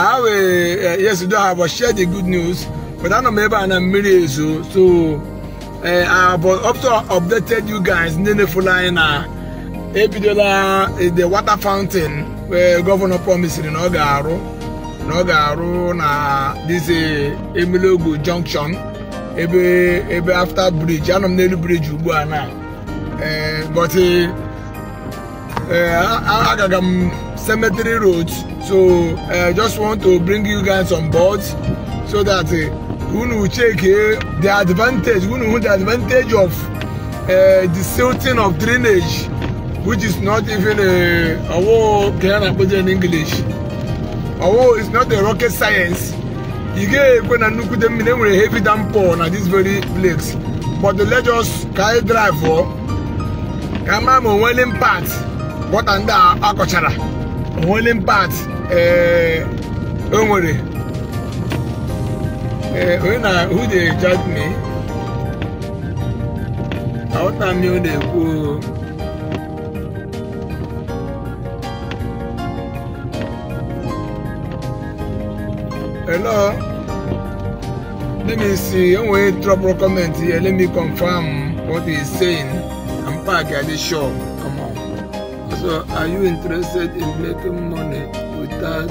I will, eh, yes, do I will share the good news, but I don't remember and I'm married, so, so uh, I have also updated you guys in the following ebidola the water fountain where governor promised na ọ ga na ọ ga na this eh, Emilogo junction ebe ebe after bridge anọ m n'elu bridge ugbu a na but agaga m um, cemetery roads so uh, just want to bring you guys on board so that uh, eh, unu check uh, the advantage unu the advantage of uh, the silting of drainage which is not even a owo can I put in English owo is not a rocket science you get when I look them in a heavy downpour at this very place but the let us carry drive for oh. come on well impact what a akọchara holding part eh, o nwere eh, onye na who dey judge me aghọta m ihe ọ na-ekwu hello let me see enwere trouble comment here let me confirm what he is saying I'm park at the shop. So are you interested in making money without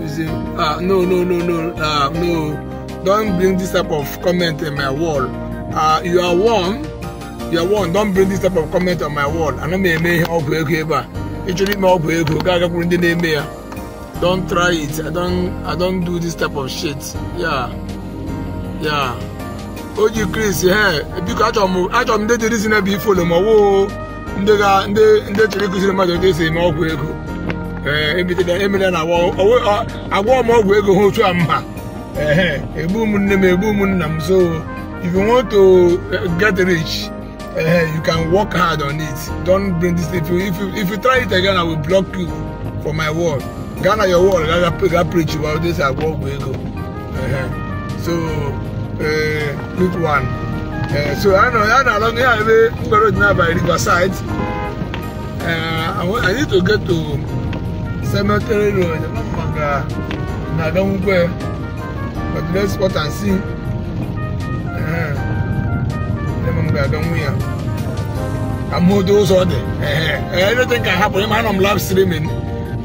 using ah no no no no ah no don't bring this type of comment in my wall ah you are one you are one don't bring this type of comment on my wall ana m eme ihe ọgwụ ego ebe a ịchọrọ ime ọgwụ ego gaa gakwuru ndị na-eme don't try it i don't i don't do this type of shit yeah yeah o ji chris he biko achọrọ m achọrọ m ndị dịrịsị na ebe ifolo ma woo ndị chọrọ ịkụziri mmadụ ndị esi eme ọgwụ ego emela na agwọ m ọgwụ ego ha otu a mma egbu ụmụnne m egbu ụmụnna m so if you want to eh, get rich you can work hard on it don't bring this if you, if you, if you try it again i will block you for my word gana your word ga preach about this agwọ ọgwụ ego so eh, quick one Eh, so a na-alụ ya ebe mgbere dị n'abalị riverside anyị to get to cemetery road oh maka na-aga but see ga-aga nwu ya can happen live streaming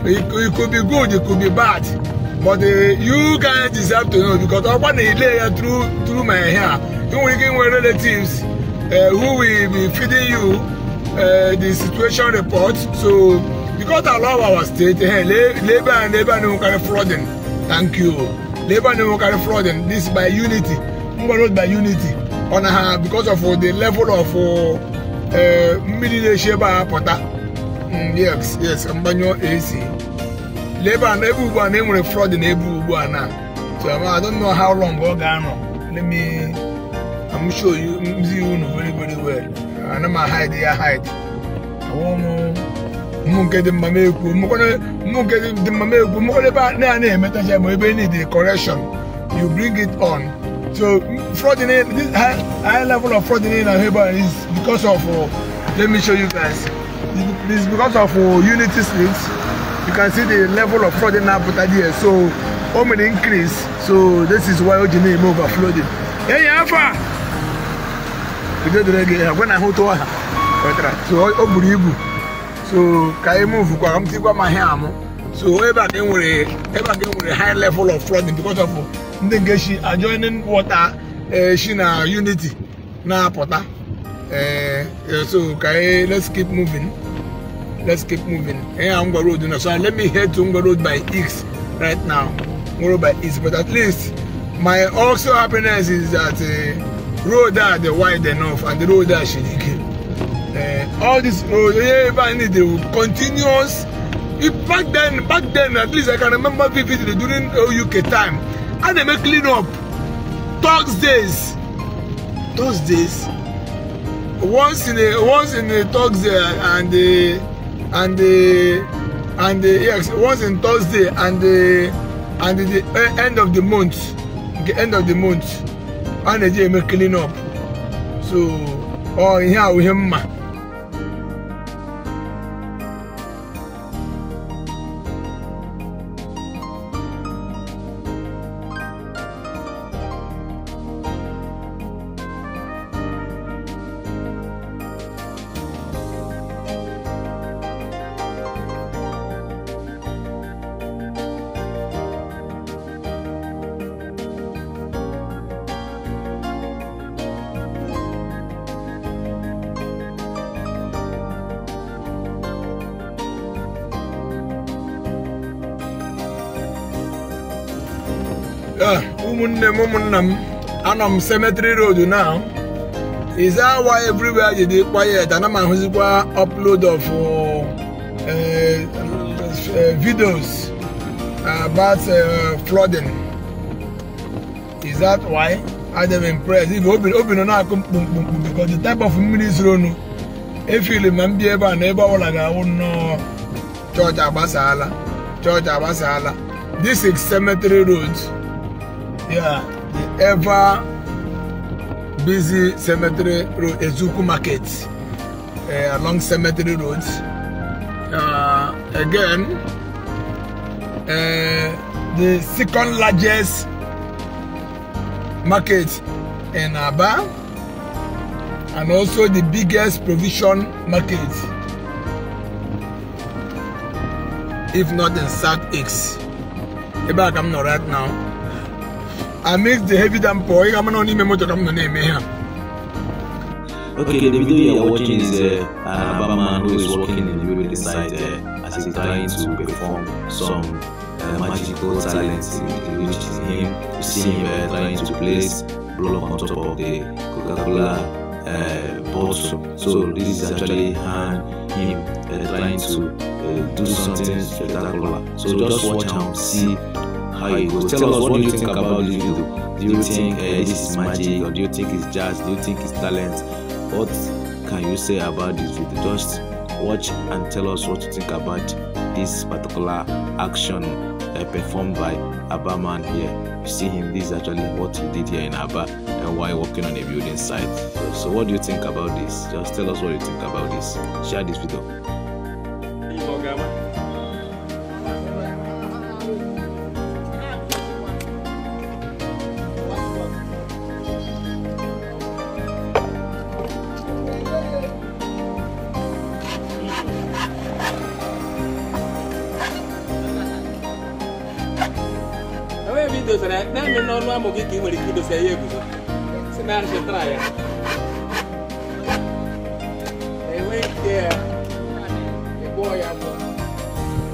it could be good it could be bad but eh, you guys deserve to know because through through my hair nwere ike inwe relatives uh, who will be feeding you uh, the situation report so because a lot of our state hey, eh, labor and Labour no carry flooding thank you Labour no carry flooding this by unity ngwano by unity on her because of uh, the level of mmiri na-eche ebe yes yes mgbanyụ ac Labour and ebe ugbu a na enwere flooding ebe ugbu a na so I don't know how long ọ oh, ga-anọ let me I'm sure you, you know very, very well. And I'm a hide, I hide. I won't know. Mo get the mame ku, mo gonna, get the mame ku, mo gonna ba na na meta je mo ebe need the correction. You bring it on. So fraud in this high, high level of fraud in Aheba is because of. Uh, let me show you guys. It's because of uh, Unity streets. You can see the level of fraud in Abuja here. So, how many increase. So this is why Ojini is overflowing. Hey, Alpha. dere gị ha gwe na ahụ tụọ so o buru ibu so ka anyị mụvụkwa ka m tikwa ma ihe amụ so ebe a ka enwere ebe a ka enwere high level of flooding because of ndị nke shi adjoining water e, shi na unity na-apụta e, e, so ka anyị let's keep moving let's keep moving ihe a ngwa road na so let me head to ngwa road by east right now ngwa road by east but at least my also happiness is that uh, road that dey wide enough and the road that shiriki uh, eh, all this road everybody dey continuous if back then back then at least i can remember vividly during uk time how dem make clean up thursdays thursdays once in a once in a thursday and a and a and a yes once in thursday and a and the, the eh, end of the month the end of the month a na-eji eme clean up so ọ ihe ahụ ihe mma ụmụnne ah. m ụmụnna m anọ m cemetery road now is that why everywhere you dey quiet ana m ahụzikwa upload of eh, eh, eh, videos about flooding is that why adem impressed obi nọ na-akụ mkpumkpumkpu because the type of mmiri zuronu efili ma m ebe a na ebe ọbụla ga-awụ nnọọ chọọchị agbasaala chọọchị agbasaala this is cemetery yeah, the ever busy cemetery road, Ezuku Market, uh, along Cemetery roads. Uh, again, uh, the second largest market in Aba, and also the biggest provision market, if not in South I'm not right now amidst the heavy downpour, I cannot even remember the name here. Okay, the video you are watching is uh, an Abba man who is working in the building site uh, as he's trying to perform some uh, magical talents, which is him, you see him uh, trying to place block on top of the Coca-Cola uh, bottle. So this is actually hand, him uh, trying to uh, do something spectacular. So just watch and see how you go. Tell us what do you think about this video. Do you think uh, this is magic or do you think it's jazz? Do you think it's talent? What can you say about this video? Just watch and tell us what you think about this particular action uh, performed by Abba man here. You see him, this is actually what he did here in Abba and why working on a building site. So what do you think about this? Just tell us what you think about this. Share this video. não não não n'ọnụ amụ gị ka ị nwere ike idosa ya não si na arịchịtara ya enweghị não ya ịgwọ ya bụ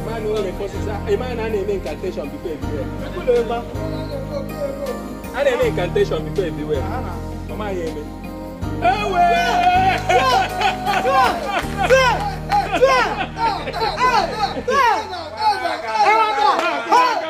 mmanụ ọ na-ekosisa ịma na a na-eme incantation bifo ebiwe a na-eme incantation bifo ebiwe ọ maghị eme ewe Hey!